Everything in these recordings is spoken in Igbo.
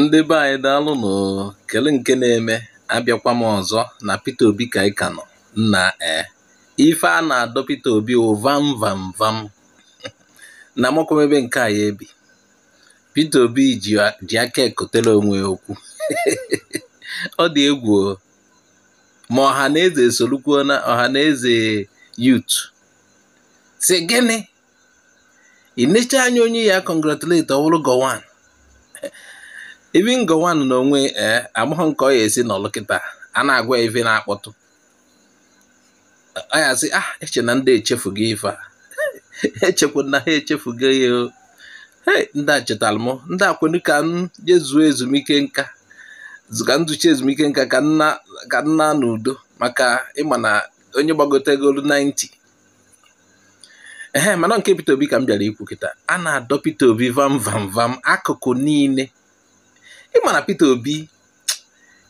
Ndị be anyị daalụnụ. Kele nke na-eme abịakwa m ọzọ na Peter Obi ka anyị ka nọ nna ee eh, ife a na-adọ Peter Obi wụ vam vam vam na ebe nke a ya ebi Peter Obi ji aka ekotela onwe okwu ọ dị egwu ma ọha na eze esolukwu na ọha na eze yut si gịnị anya onye ya congratulate ọ bụrụ even Gowon n'onwe ee amaghị nke ọ ya esi nọlụ kịta a na-agwa ife na-akpọtụ ọ ya sị ah eche na ndị echefugo ife a echekwu na ha echefugo ya ndị a chetara m ndị akwenu ka m jezuo ezumike nka ka nduchi ezumike nka ka nna ka nna n'udo maka ịma na onye gbagotegolu 90 ehe mana nke Peter Obi ka m bịara ikwu kịta a na-adọ Peter Obi vam vam vam akụkụ niile ị na Peter Obi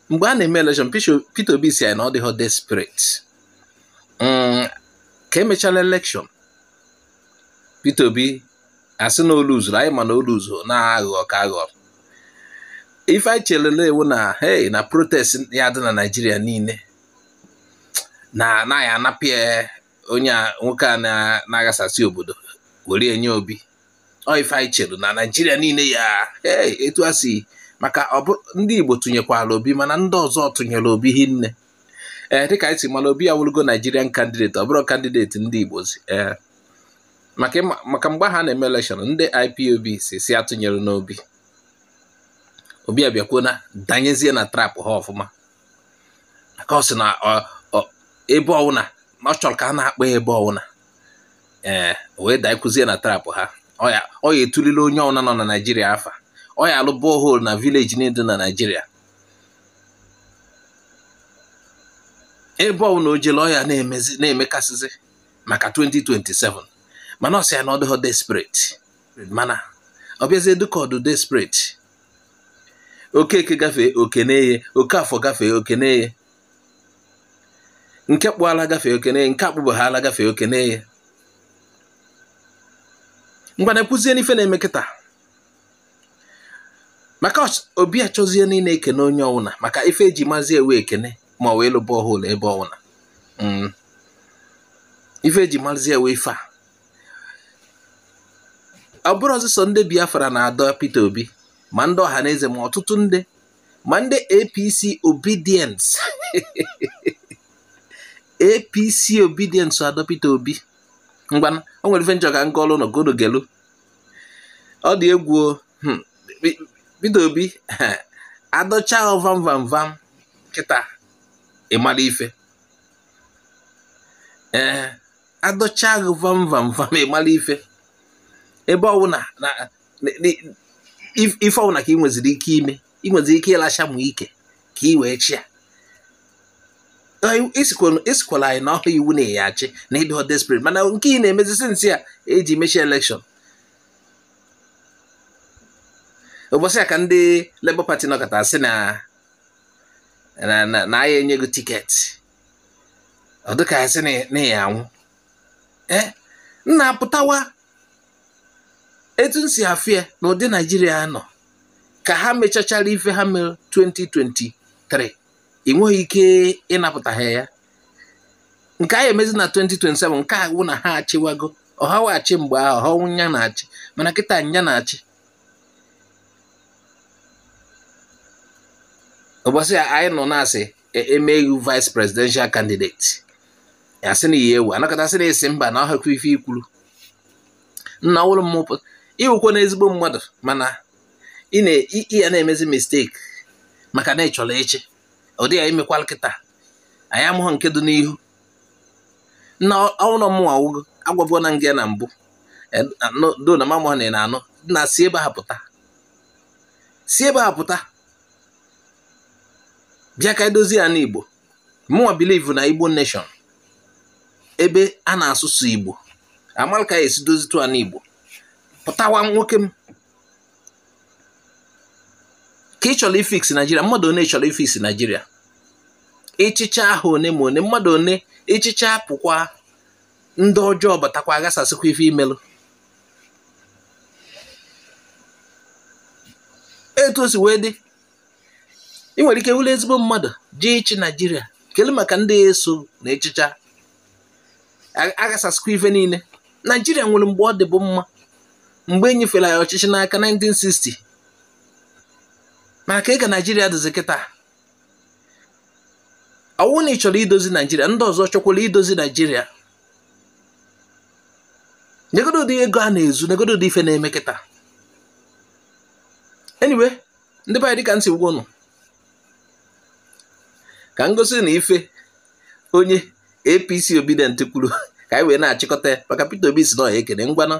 mgbe a na-eme election Peter Obi si anyị na ọ dịghọ desperate mm, ka emechala election Peter Obi asị na olu zuru anyị ma na olu zuru na aghụghọ ka aghọ ife anyị chelele ewu na hey na protest ya dị na naijiria niile na anaghị anapụ ya onye nwoke a na agasasị obodo were enye Obi ọ ife anyị na naijiria niile ya etu a si maka ndị Igbo tụnyekwala Obi mana ndị ọzọ tụnyere Obi hinne ee dịka anyị si mara Obi awụrụgo Naịjirian kandideti ọ bụrụ kandideti ndị Igbo e. maka mgbe ha na-eme elekshọn ndị IPOB si si atụnyere n'Obi Obi abịakwuo na danyezie na trap ha ọfụma maka ọ sị na ebe ọwụna ọ chọrọ ka a na-akpa ebe ọwụna ee wee danyekụzie na trap ha ọ ya etulile onye ọwụna nọ na Naịjirịa afa ọ ya alụ borehole na vileji niile na Naịjirịa ebe ọbụla o ọ ọya na-emekasịzi maka 2027 mana ọsị ya na ọ dịghọ desperate mana ọ bịazie dịka ọdụ oke okeke gafee oke okeneye oke afọ gafee oke okeneye nke kpụala gafee oke okeneye nke akpụbaghala gafee okeneye ngwana kwụzie n'ife na-eme kịta maka obi achọzie niile ekene onye ọwụna maka ife eji mazi ewe ekene ma ọ wee lụba ọhụrụ ebe ọwụna mm. ife eji mazi ewe ife a ọ bụrụ ọzụsọ ndị biafra na-adọ Obi ma ndị ọha na ma ọtụtụ ndị ma ndị APC obedience APC obedience adọ Obi mgbana o nwere ife njọ ka ọlụ ọ dị egwu bido obi adọcha vam vam vam kịta ịmara ife ee adọcha ahụ vam vam vam ịmara eh, ife ebe ọbụla na ife ọbụla ka ị nweziri ike ime ị nweziri ike ịlacha mụ ike ka ị wee chia isikwala anyị na ọhụ iwu na-eyi achị na ịdị desperate mana nke ị na-emezi nsi a eji mechie elekshọn ụbọchị a ka ndị Labour Party nọkọta asị na na agha enye gị tiketi ọ ka asị na enye anwụ e, nna apụtawa etu m si afịa na ụdị Naijiria nọ ka ha mechachara ife ha mere 2023 ị nweghị ike ịnapụta ha ya nke anyị emezi na 2027 nke a wụ na ha achịwago ọha achị mgbe ahụ ọha nya na-achị mana kịta nya na-achị a anyị nọ na-asị emeghị e, vice presidential candidate e, asị na ihe ewu anakọta na esi mba na ọhakwa ife ikwuru nna ọhụrụ m ịwụkwa na ezigbo mmadụ mana ị ya na-emezi mistake maka na ịchọrọ chọrọ echi ọ dịghị imekwala kịta anyị amụghị nke dị n'ihu nna ọhụrụ m awụgo agwabụọ na nga na mbụ e, do na mamụha na anọ na si ebe ha pụta si ebe ha pụta bịa ka edozi ya igbo mụwa bilivu na Igbo nation ebe a na-asụsụ Igbo amalika ka esi dozitu a igbo pụtawa nwoke m ka ị chọrọ ifiks mmadụ one chọrọ ifiks Nigeria ịchịcha ahụ one ma one mmadụ one ịchịcha pụkwa ndị ọjọọ batakwa aghasasịkwa ife imelụ etu o wee dị ị nwere ike wụlụ ezigbo mmadụ ji ịchị naijiria kelee maka ndị eso na echicha agasasikwa ife niile naijiria nwere mgbe ọ dịbụ mma mgbe e nyefere ya ọchịchị n'aka 1960 maka ka ịga naijiria dịzi kịta ọwụ na ị chọrọ idozi naijiria ndị ọzọ chọkwara idozi naijiria nyegodo ụdị ego a na-ezu nyegodo ụdị ife na-eme kịta anyway ndị be dịka nsị gwụnụ ka ngosi na ife onye apc obidient kwuru ka anyị wee na-achịkọta ya maka peter obi si na ọya ekene ngwana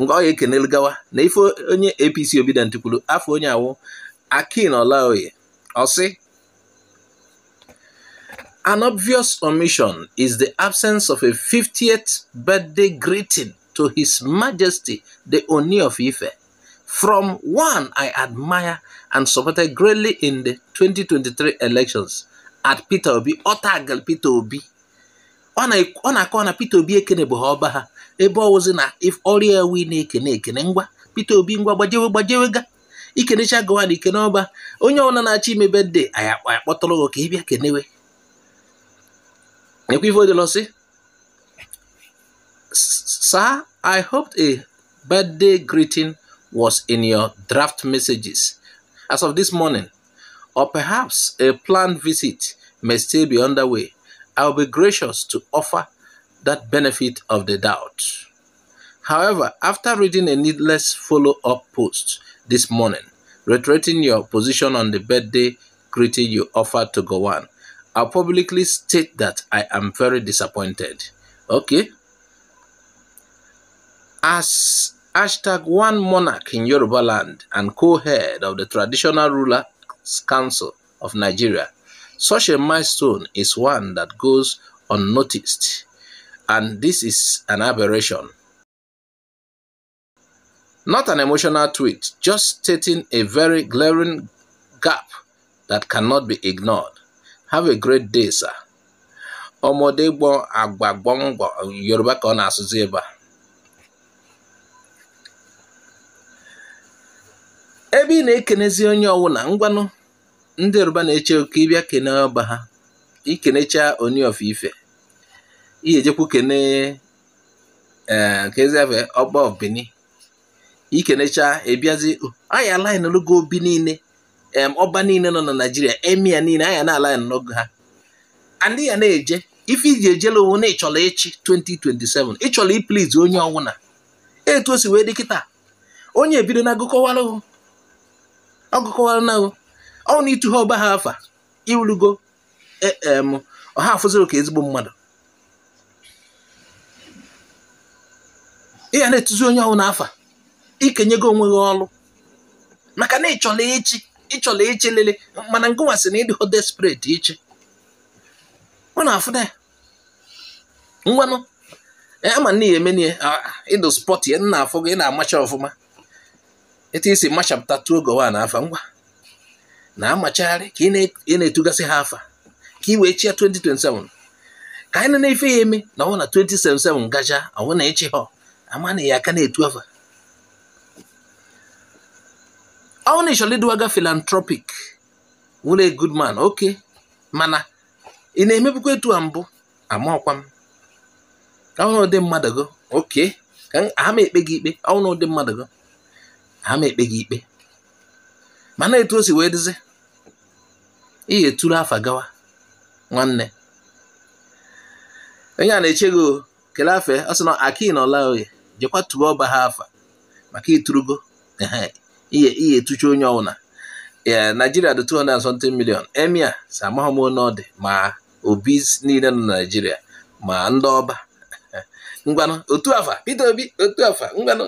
ngwa ọya ekenelu gawa na ife onye apc obidient kwuru afọ onye awụ akin olaoye ọsị An obvious omission is the absence of a 50th birthday greeting to His Majesty the Oni of Ife, from one I admire and supported greatly in the 2023 elections, at Peter Obi ọ tagal Peter Obi ọ na-akọ na Peter Obi bụ ha ọba ha ebe ọ wụzi na ọrịa wi na-ekene ekene ngwa Peter Obi ngwa gbajewe gbajewe ga ikenecha gawa na ikene ọba onye ọbụla na-achọ ime bedde anyị akpọtụrụ gị ka ị bịa kenewe ekwivodolosi sir i hoped a birthday greeting was in your draft messages as of this morning or perhaps a planned visit may still be underway, I will be gracious to offer that benefit of the doubt. However, after reading a needless follow up post this morning, reiterating your position on the birthday greeting you offered to Gowan, I'll publicly state that I am very disappointed. Okay? As hashtag one monarch in Yoruba land and co head of the traditional ruler Council of Nigeria. Such a milestone is one that goes unnoticed, and this is an aberration. Not an emotional tweet, just stating a very glaring gap that cannot be ignored. Have a great day, sir. ọmọdé gbọ́n àgbà Yorùbá kan na ebe ị na-ekenezi onye ọwụla ngwanụ ndị Yoruba na-eche oke ịbịa kene ọba ha ikenecha oni e, of ife ijejekwu kene keziafe ọba obini ikenecha ebiazi oh, anya alaghị obi niile ọba niile nọ na Naịjirịa emia niile anya na-alaghị n'ogo ha andị ya na-eje ife iji ejela onwe na ịchọrọ ịchị 2027 ịchọla ipliz onye ọwụla etu o si wee dị kịta onye ebido na agụkọwalụ ọgụkọwara ọnwụ na ịtụghe ọgba ha afa irugo e, em ọha afụziri ka ezigbo mmadụ ị ga na-etuzi onye ọnwụ n'afa ikenyego onwe gị ọrụ maka na ịchọla echi, ịchọla ịchị lele mana ngụnwa na ịdịho desperate iche ọ na-afụda ya ngwanụ e, ama na ihe ịdụ spọt ya nna afọ gị na-amacha ọfụma etu isi machapụta tuo gowa na afa ngwa na-amachagharị ka ị na-etugasị ha afa ka ị wee chia 2027 ka anyị na-efe ya eme na ọnwụ na 2077 gaja ọnwụ na ịchị ha ama na ya aka na-etu afa ọnwụ na ịchọrọ ịdịwaga philanthropic wụrụ oke mana ị na emebikwa etu a mbụ ama ọkwa m ọnwụ ụdị mmadụ go oke ka aha m ekpe gị ikpe ọnwụ ụdị mmadụ go ha ma ekpe gị ikpe mana etu o si wee dịzi ihe tụrụ afa gawa nwanne onye a na-eche gị kele afe ọ sị na aki na ọla oye jekwa tuwe ọba ha afa maka iturugo ihe etucha onye na naijiria dị 270 milion emia si amaghị m ọ dị ma obi niile nọ na naijiria ma ndị ọba ngwanụ otu afa Obi otu afa ngwanụ